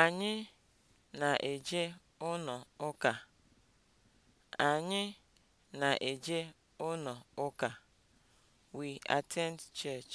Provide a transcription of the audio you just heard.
Anyị na-eje ụnọ ụka. Anyị na-eje ụnọ ụka. We attend church.